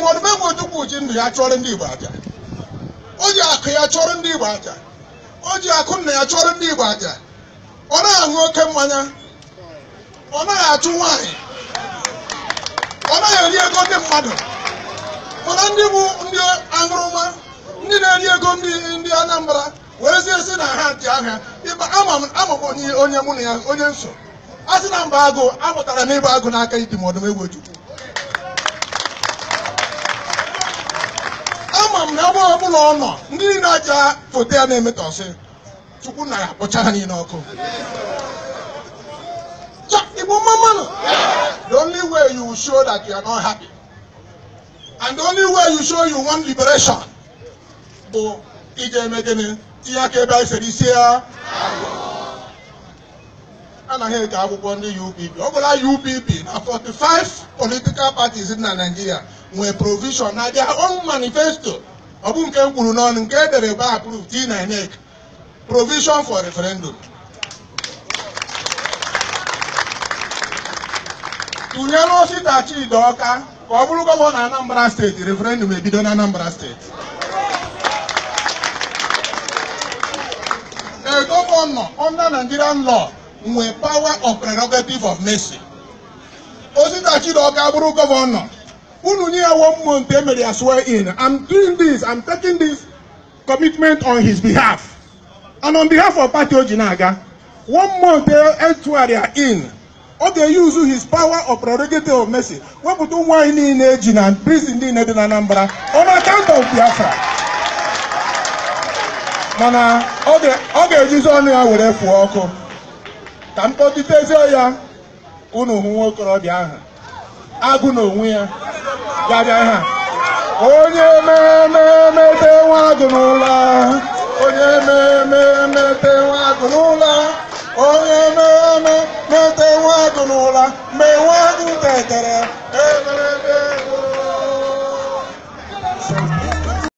ma ọdụbe egwu ojukwu ji ndụ ya chụọrọ ndị Igbo aja o ji akụ ya chụọrọ ndị Igbo aja o ji akụ nna ya chụọrọ ndị Igbo aja ọ naghị aṅụ oke mmanya ọ naghị achụ nwanyị, ọ naghị eri ego ndị mmadụ mana ndị bụ ndị aṅụrụma ndị na-eri ego ndị Anambra werezie si na ha dị aha ịba ama onye mụ na ya onye nso a sị na mba agụ amụtara m agụ n'aka idimọdụm egwu ojukwu m na ebe ọbụla ọ nọ ndị niile aja foto ya na-emetọsị chukwu na ya kpọcha ha niile ọkụ igbo mmanụ the only way you show that you are not happy and the only way you show you want liberation bụ ije eme tinye aka ebe anyị isi ya anaghị eji akwụkwọ ndị UPP ọ bụla UPP na 45 political parties na Naịjirịa nwee provision na their own manifesto ọ bụ nke m kwuru n'ọnụ nke edere by approved in INEC provision for referendum tụnyere osita Chidoka ka ọ bụrụ gọvanọ Anambra steeti referendum ebido na Anambra steeti a governor under Nigerian law nwee power of prerogative of mercy osita Chidoka bụrụ gọvanọ unu nye ya one month emere ya swear in i'm doing this i'm taking this commitment on his behalf and on behalf of party oji na-aga one month etugharịa e in ọ ga-eyuzu his power of prerogative of mercy wepụta ụmụ anyị niile eji na prison niile dị na Anambra on account of Biafra mana ọ ga-ejizi ọnụ ya were fụọ ọkụ ka m kpọtitezie ya unu hụ nwa ahụ agụ n'onwe ya onye emememete nwa agụ n'ụlọ onye emememete nwa agụ n'ụlọ onye mee mete nwa agụ n'ụlọ mgbe nwa agụ tetere